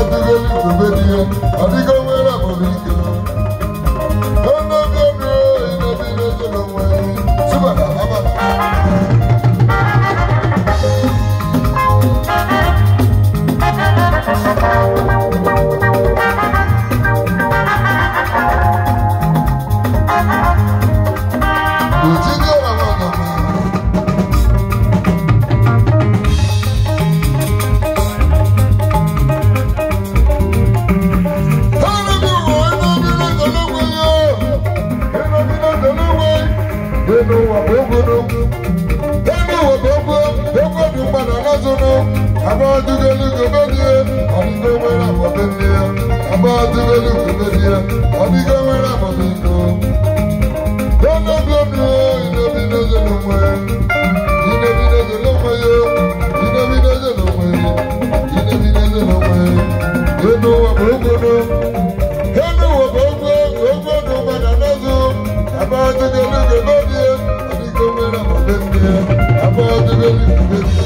ọdún lórí ìgbòho ni ọ ọdún n'ụwa ogolo ebe ụwa bụ ogo ogo dị mma na anazụnụ abadugelugobelie ọdịgo nwere akpọbelie abadugelugobelie ọdịgo I'm gonna Thank you.